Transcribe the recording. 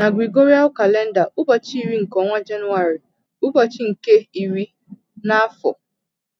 Na Gregorian calenda, ụbọchị iri nke ọnwa Jenụwarị ụbọchị nke iri n'afọ.